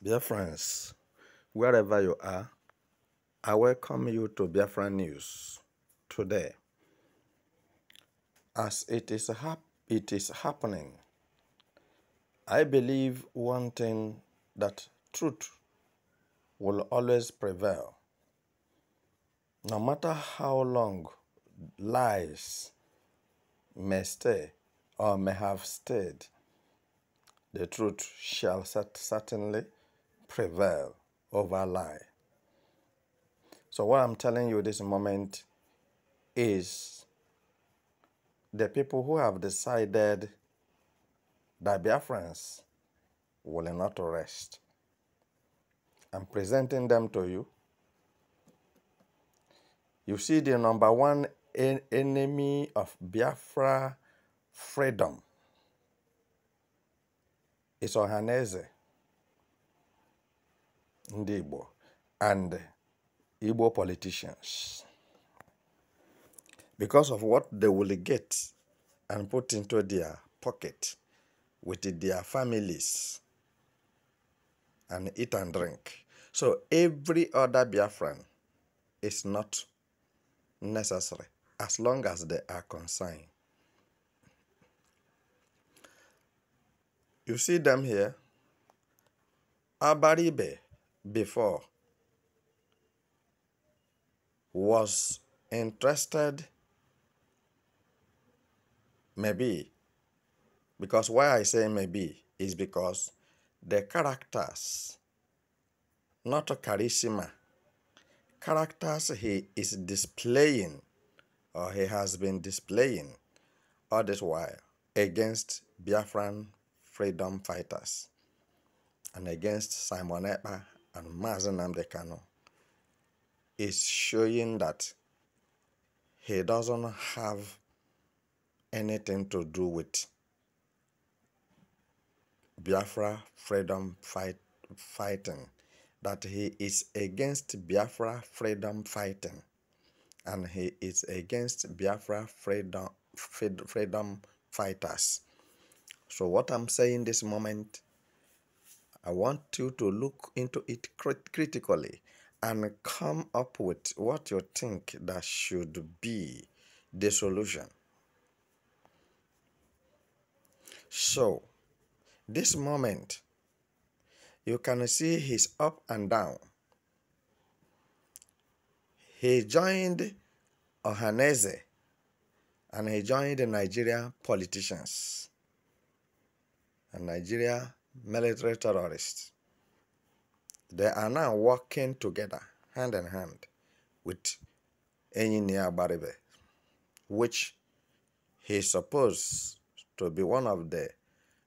Dear friends, wherever you are, I welcome you to Biafra News today. As it is, hap- it is happening, I believe one thing that truth will always prevail. No matter how long lies may stay or may have stayed, the truth shall certainly prevail over lie. So, what I'm telling you this moment is the people who have decided that Biafrans will not rest. I'm presenting them to you. You see, the number one en enemy of Biafra freedom is Ohaneze ndị Igbo and Igbo politicians because of what they will get and put into their pocket with their families and eat and drink. So every other Biafran is not necessary as long as they are concerned. You see them here. Abaribe before was interested maybe because why I say maybe is because the characters, not charisma, characters he is displaying or he has been displaying all this while against Biafran freedom fighters and against Simon Epa and Mazen Amdekano is showing that he doesn't have anything to do with Biafra freedom fight, fighting, that he is against Biafra freedom fighting, and he is against Biafra freedom, freedom fighters. So what I'm saying this moment I want you to look into it crit- critically and come up with what you think that should be the solution. So, this moment, you can see he's up and down. He joined Ohaneze and he joined the Nigerian politicians and Nigeria military terrorists. They are now working together, hand in hand, with Engineer Baribe, which he supposed to be one of the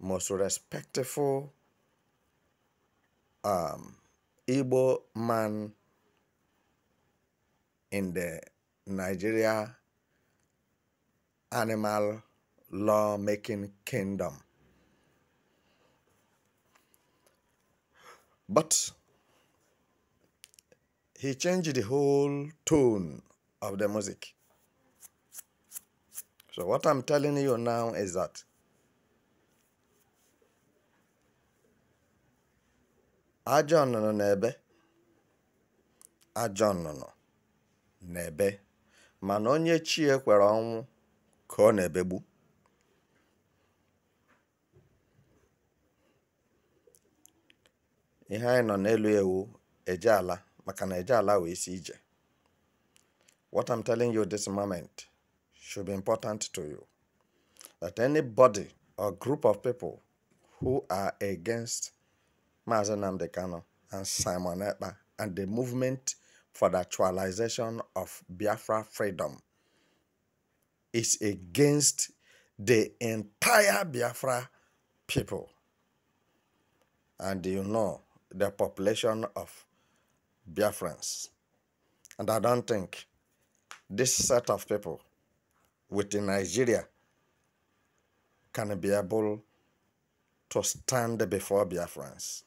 most respectful um, Igbo man in the Nigeria animal law making kingdom. But he changed the whole tone of the music. So what I'm telling you now is that ajọ nnụnụ na-ebe ajọ nnụnụ na-ebe mana onye chie kwere ọnwụ ka ọ na-ebegbu ihe anyị nọ n'elu ewu eje ala maka na eje ala wee si ije what i'm telling you this moment should be important to you that anybody or group of people who are against Mazen Namdekano and Simon Ekpa and the movement for the actualization of Biafra freedom is against the entire Biafra people. And you know the population of Biafrans. And I don't think this set of people within Nigeria can be able to stand before Biafrans.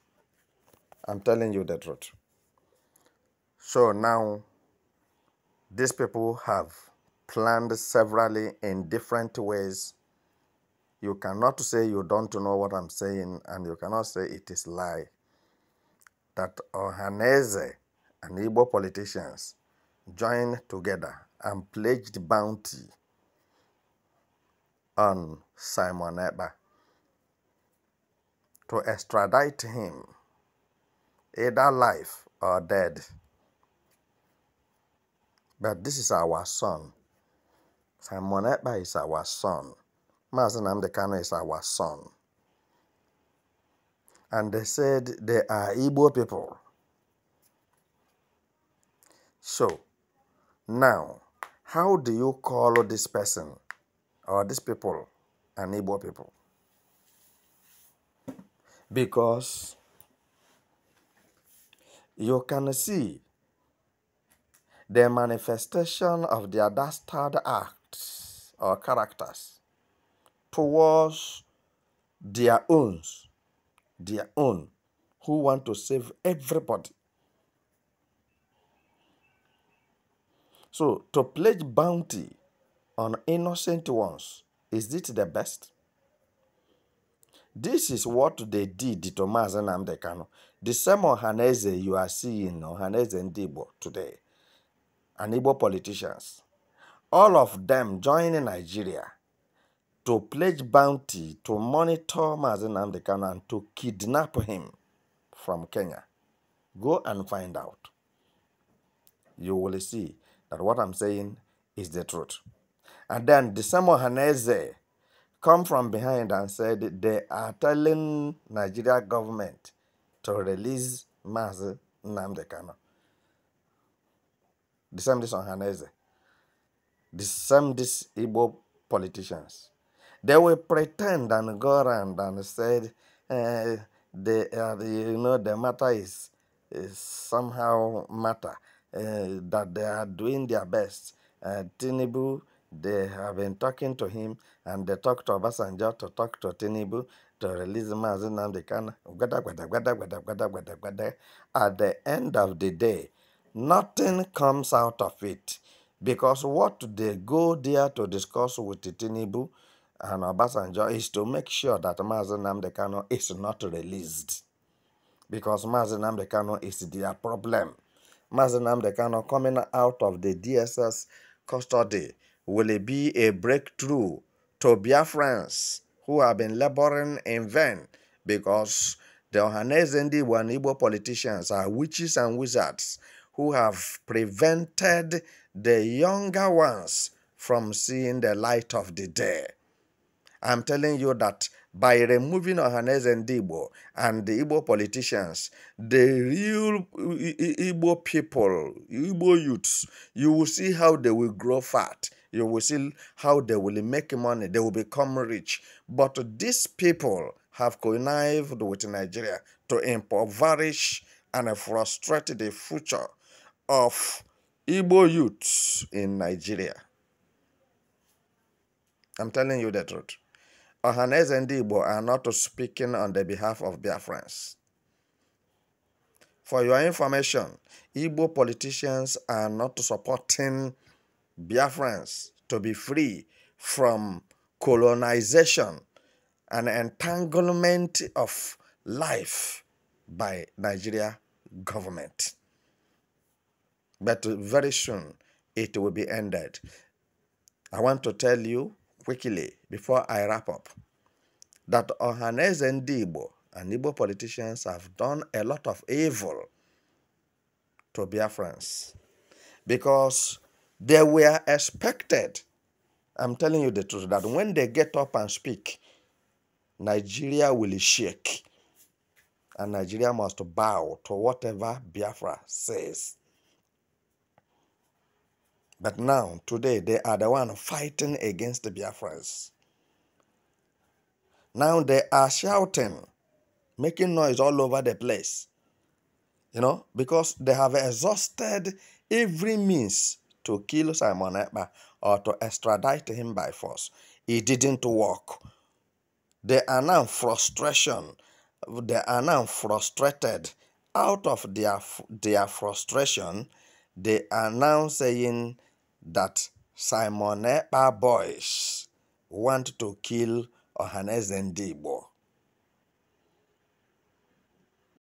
I'm telling you the truth. So now, these people have planned severally in different ways. You cannot say you don't know what I'm saying, and you cannot say it is lie that Ohaneze and Igbo politicians joined together and pledged bounty on Simon Eba to extradite him, either life or dead. But this is our son. Simon Eba is our son. Mazenam Dekano is our son and they said they are Igbo people. So, now, how do you call this person or these people an Igbo people? Because you can see the manifestation of their dastard acts or characters towards their owns their own who want to save everybody. So, to pledge bounty on innocent ones, is it the best? This is what they did to and the Kanu. The same Ohaneze you are seeing, Ohaneze Ndigbo today, and Igbo politicians, all of them joining Nigeria to pledge bounty to monitor Mazin Amdekan and to kidnap him from Kenya. Go and find out. You will see that what I'm saying is the truth. And then the Samuel Haneze come from behind and said they are telling Nigeria government to release Mazin Namdekano. The same this on Haneze. The same this Igbo politicians. They will pretend and go around and said, eh, uh, uh, you know, the matter is, is somehow matter, uh, that they are doing their best. Uh, eh, Tinibu, they have been talking to him, and they talk to Obasanjo to talk to Tinibu to release Mazin can. At the end of the day, nothing comes out of it because what they go there to discuss with Tinibu and Obasanjo is to make sure that Mazen Namdekano is not released because Mazen Namdekano is their problem. Mazen Namdekano coming out of the DSS custody will be a breakthrough to Biafrans who have been laboring in vain because the Ohanezendi Wanibo politicians are witches and wizards who have prevented the younger ones from seeing the light of the day. I'm telling you that by removing Ohanes and Igbo and the Igbo politicians, the real Igbo people, Igbo youths, you will see how they will grow fat. You will see how they will make money. They will become rich. But these people have connived with Nigeria to impoverish and frustrate the future of Igbo youths in Nigeria. I'm telling you the truth. Ohaneze and Igbo are not speaking on the behalf of Biafrans. For your information, Igbo politicians are not supporting Biafrans to be free from colonization and entanglement of life by Nigeria government. But very soon it will be ended. I want to tell you quickly before I wrap up that and Ndigbo and Igbo politicians have done a lot of evil to Biafrans because they were expected, I'm telling you the truth, that when they get up and speak, Nigeria will shake and Nigeria must bow to whatever Biafra says. But now, today, they are the one fighting against the Biafrans. Now they are shouting, making noise all over the place. You know, because they have exhausted every means to kill Simon or to extradite him by force. It didn't work. They are now frustration. They are now frustrated. Out of their, their frustration, they are now saying that Simon Ekpa boys want to kill Ohanes Debo.